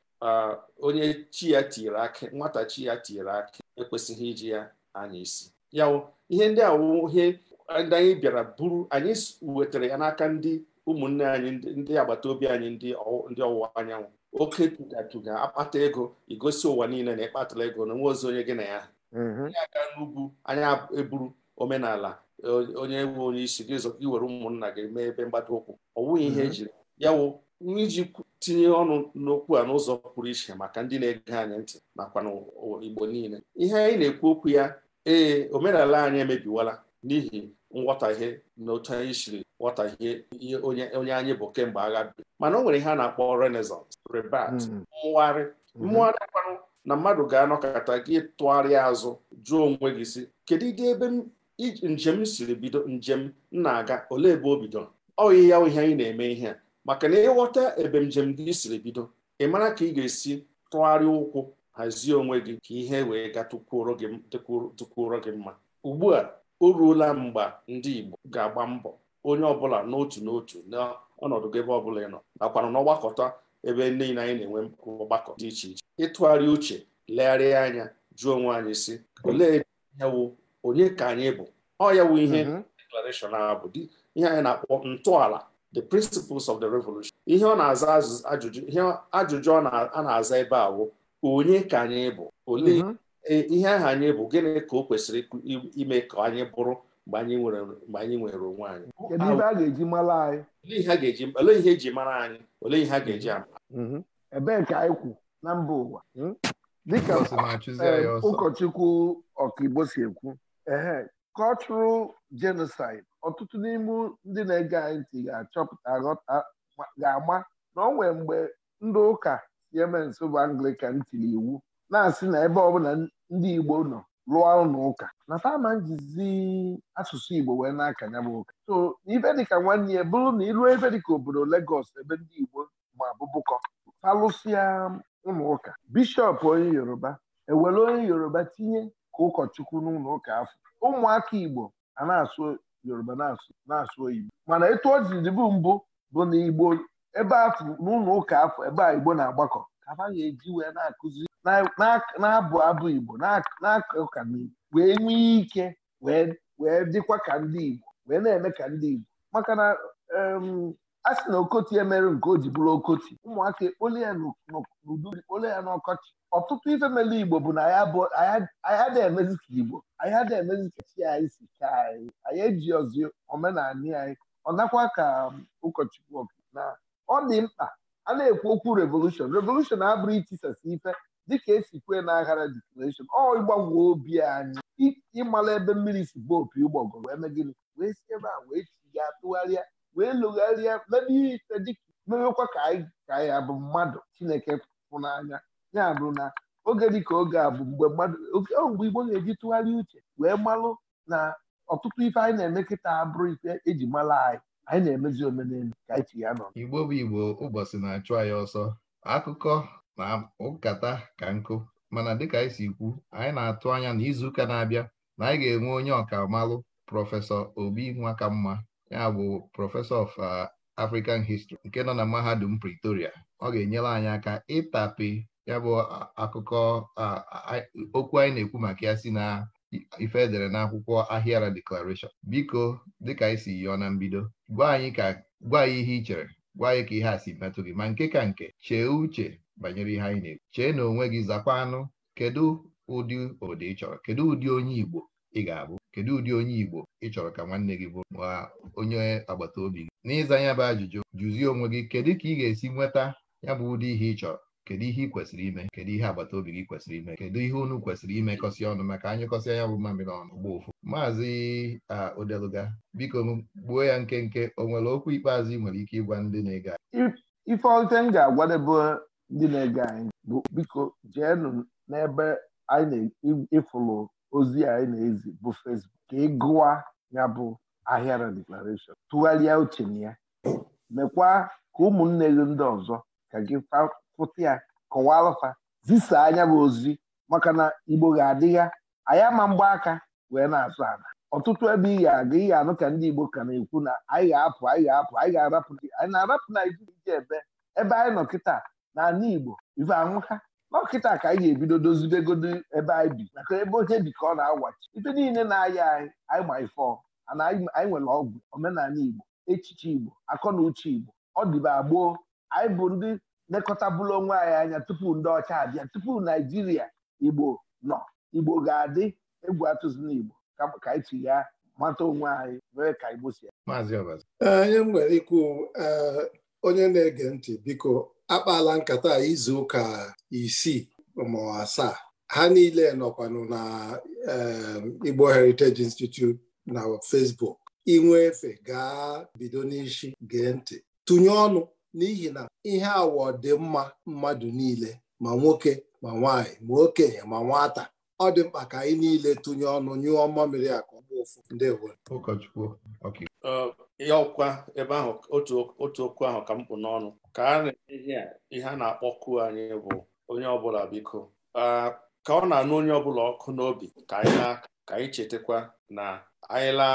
onye chi ya tiere akị nwata chi ya tiere akị ekwesịghị iji ya anya isi ya ihe ndị a ihe ndị anyị bịara buru anyị wetara ya n'aka ndị ụmụnne anyị ndị agbata obi anyị ndị ọwụwa anyanwụ oke tugatuga akpata ego igosi ụwa niile na ịkpatara ego na nwa ozi onye gị na ya mm-hmm. aga n'ugwu anyị eburu omenala onye nwe onye isi gị iwere ụmụnna gị mee ebe mgbada ụkwụ ọ wụghị ihe mm-hmm. ejiri yawo wụ iji tinye ọnụ n'okwu a n'ụzọ pụrụ iche maka ndị na-ege anyị ntị nakwa n'Igbo niile ihe anyị na-ekwu okwu ya ee omenala anyị emebiwala n'ihi nghọtahie na otu anyị siri ghọtahie onye anyị bụ kemgbe agha bi mana o nwere ihe a na-akpọ renaissance rebat hmm. mmụgharị hmm. mmụgharị akpanụ na mmadụ ga-anọkọta gị tụgharịa azụ jụọ onwe gị si kedu ịga ebe njem siri bido njem m na-aga olee ebe o bidoro ọ ihe ya ihe anyị na-eme ihe a maka na ịghọta gị siri bido ị mara ka ị ga-esi tụgharịa ụkwụ hazie onwe gị ka ihe wee ga tukwuoro gị mma ugbu a o ruola mgbe ndị Igbo ga-agba mbọ onye ọbụla n'otu n'otu n'ọnọdụ gị ebe ọbụla ị nọ nakwana n'ọgbakọta ebe niile anyị na-enwe ọgbakọ dị iche iche ịtụgharị uche legharịa anya jụọ onwe anyị si olee yawụ onye ka anyị bụ ọ yawu ihe mhm. deklarashọn a bụ ihe anyị na-akpọ ntọala the principles of the revolution ihe ọ na-aza ajụjụ ihe ajụjụ a na-aza ebe ahụ onye ka anyị bụ olee mhm. e, ihe ahụ anyị bụ gịnị ka o kwesịrị ime ka anyị bụrụ mgbe anyị nwere onwe anyị olee ihe eji mara anyị olee ihe a ga-eji mhm. ama mhm. ebee ka anyị kwu na mba ụwa hmm? dịka eh, ụkọchukwu ọkaigbo si ekwu cultural genocide ọtụtụ n'ime ndị na-ege anyị ntị ga-achọpụta ga-ama na ọ mgbe ndị ụka si eme nso bụ anglican tiri iwu na-asị na ebe ọbụla ndị igbo nọ lụọ ụlọ ụka na fama njizi asụsụ igbo wee na-aka ya bụ ụka so ibe dịka nwanne ya bụrụ na ịlụọ ebe dịka obodo Lagos ebe ndị igbo ma bụbụkọ falụsịa ụlọ ụka bishọp onye yoruba ewere onye yoruba tinye ka ụkọchukwu n'ụlọ ụka afọ ụmụaka Igbo ana asụ Yoruba na-asụ oyibo mana etu o bụ mbụ bụ na Igbo ebe afọ n'ụlọ ụka afọ ebe a Igbo na-agbakọ ka ha ga-eji wee na-akụzi na-abụ abụ Igbo na-aka wee nwee ike wee dịkwa ka ndị Igbo wee na-eme ka ndị Igbo maka na a sị na okoti emere nke o ji bụrụ okoti ụmụaka ekpole ya n'udu ekpole ya n'ọkọchị ọtụtụ ife mere igbo bụ na anya dị emezi ka igbo anya dị emezi ka chi anyị si ka anyị anyị eji ozi omenala anyị ọ nakwa ka um, ụkọchukwu na ọ dị mkpa a na-ekwu okwu revolushon revolushon abụrụ itisasi ife dịka esi kwee na aghara deklarashon ọ ịgbanwe obi anyị ịmala ebe mmiri si bụ opi ụgbọgọ wee mee wee si ebe a wee chiga tụgharịa wee lụgharịa n'ebe ihe ite dịka mewekwa ka anyị abụ mmadụ chineke pụ n'anya ya bụ na oge ka oge a bụ mgbe mmadụ mgbe igbo na-eji tụgharị uche wee malụ na ọtụtụ ife anyị na-eme kịta abụrụ ife eji mara anyị anyị na-emezi omenelu ka anyị ya nọ igbo bụ igbo ụbọchị na-achụ anyị ọsọ akụkọ na nkata ka nkụ mana dịka anyị si kwu anyị na-atụ anya na izuụka na-abịa na anyị ga-enwe onye ọkamalụ prọfesọ obi nwa ka mma ya bụ prọfesọ of uh, African History nke nọ na mahadum Pretoria ọ ga-enyere anyị aka ịtapi ya bụ uh, akụkọ uh, okwu anyị na-ekwu maka ya si na ife edere n'akwụkwọ Ahịara Declaration biko dịka anyị si yọọ na mbido gwa anyị ka gwa ihe ị chere gwa anyị ka ihe a si metụ gị ma nke ka nke chee uche banyere ihe anyị na-ekwu chee na onwe gị zakwa anụ kedu ụdị obodo ị chọrọ kedu ụdị onye Igbo ị ga-abụ kedu ụdị onye Igbo ị chọrọ ka nwanne gị bụrụ ma onye agbata obi gị n'ịza ya bụ ajụjụ jụzie onwe gị kedu ka ị ga-esi nweta ya bụ ụdị ihe ị chọrọ kedu ihe ị kwesịrị ime kedu ihe agbata obi gị kwesịrị ime kedu ihe unu kwesịrị kọsi ọnụ maka anyị kọsịa ya bụ mamịrị ọnụ gba ụfụ maazị Odeluga biko gbuo ya nkenke o nwere okwu ikpeazụ ị nwere ike ịgwa ndị na ega ife m ga-agwadebe ndị na-ege anyị bụ biko n'ebe anyị na-ịfụlụ ozi anyị na-ezi bụ fesbuk ka ị gụwa ya bụ ahịa deklarashọn tụgharịa uche na ya mekwa ka ụmụnne gị ndị ọzọ ka gị fụta ya kọwalụfa zisa anya bụ ozi maka na igbo ga-adịgha anyị ama mgbaaka wee na azụ ala ọtụtụ ebe ị ga-aga ị ga-anụ ka ndị igbo ka na-ekwu na anyị ga-apụ anyị ga-apụ anyị ga-arapụ anyị na-arapụ naijiria ebe ebe anyị nọ kịta na ala igbo ife anwụka dọkịta ka anyị ga-ebido dozibegodo ebe anyị bi maka ebe onye bi ka ọ na-awachi ite niile na-aya anyị anyị ma ifọ ana anyị nwere ọgwụ omenala Igbo echiche Igbo akọ na uche Igbo ọ dịbe agboo anyị bụ ndị lekọtabụlụ onwe anyị anya tupu ndị ọcha abịa tupu Naijiria Igbo nọ Igbo ga-adị egwu atụzina Igbo ka anyị ti ya mata onwe anyị wee ka Igbo si ya. Onye m nwere ikwu onye na-ege ntị biko akpala nkata izu ụka isii ma asaa ha niile nọkwanụ na ehm, Igbo Heritage Institute na Facebook inwe efe gaa bido n'ishi gee ntị tụnye ọnụ n'ihi na ihe awọ dị mma mmadụ niile ma nwoke ma nwanyị ma okenye ma nwata ọ dị mkpa ka anyị niile tụnye ọnụ nyụọ mmamịrị akụ ndị ụkọchukwu ya ọkwa ebe ahụ otu okwu ahụ ka m kpụ n'ọnụ ka a na-enye ihe a na-akpọku anyị bụ onye ọbụla biko ka ọ na-anụ onye ọbụla ọkụ n'obi ka anyị chetakwa na anyịla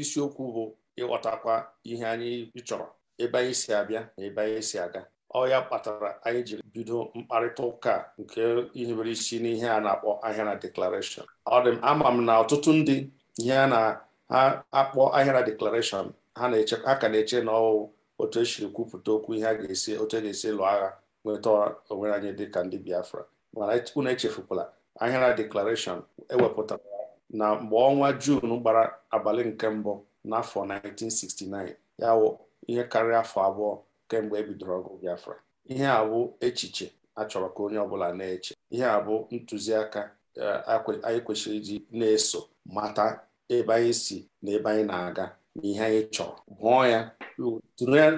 isiokwu bụ ịghọtakwa ihe anyị chọrọ ebe anyị si abịa na ebe anyị si aga ọ ya kpatara anyị ji bido mkparịta ụka nke ihe mere isi n'ihe a na-akpọ na deklarashọn ọ dị m ama m na ọtụtụ ndị ihe a na-akpọ na deklarashọn ha ka na-eche na ọwụwụ otu esiri kwupụta okwu ihe a ga-esi otu a e ga-esi lụọ agha nweta onwe anyị dịka ndị Biafra mana e, unu echefukwala ahịara deklarashọn ewepụtara na mgbe ọnwa Juun gbara abalị nke mbụ n'afọ 1969 ya wụ ihe karịa afọ abụọ kemgbe ebidoro ọgụ Biafra ihe a bụ echiche a chọrọ ka onye ọbụla na-eche ihe a bụ ntụziaka eh, anyị kwesịrị iji na-eso mata ebe anyị si na ebe anyị na-aga na ihe anyị chọrọ hụọ ya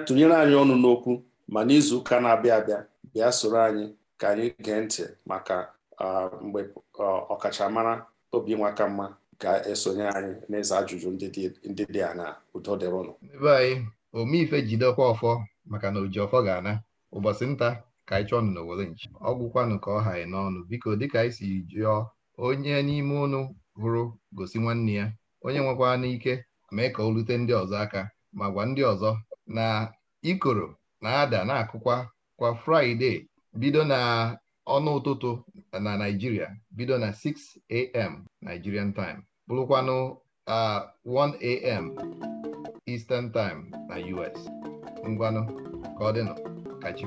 tụnyere anyị ọnụ n'okwu ma n'izu ụka na-abịa abịa bịa soro anyị ka anyị gee ntị maka mgbe ọkachamara Obinwa mma ga-esonye anyị n'ịza ajụjụ ndị dị a udo dịrị ụnụ ebe anyị omeife jidekwa ọfọ maka na oji ọfọ ga-ana ụbọchị nta ka anyị chọọ ọnụ n'owere nchi ọgwụkwanụ ka ọ ha n'ọnụ biko dịka anyị si jụọ onye n'ime ụnụ hụrụ gosi nwanne ya onye nwekwa n'ike mee ka o lute ndị ọzọ aka ma gwa ndị ọzọ na ikoro na-ada na-akụkwa kwa fraịde bido na ọnụ ụtụtụ na naijiria bido na 6am nigerian time bụrụkwanụ 1am eastern time na us ngwanụ ka ọ dịnụ ka chi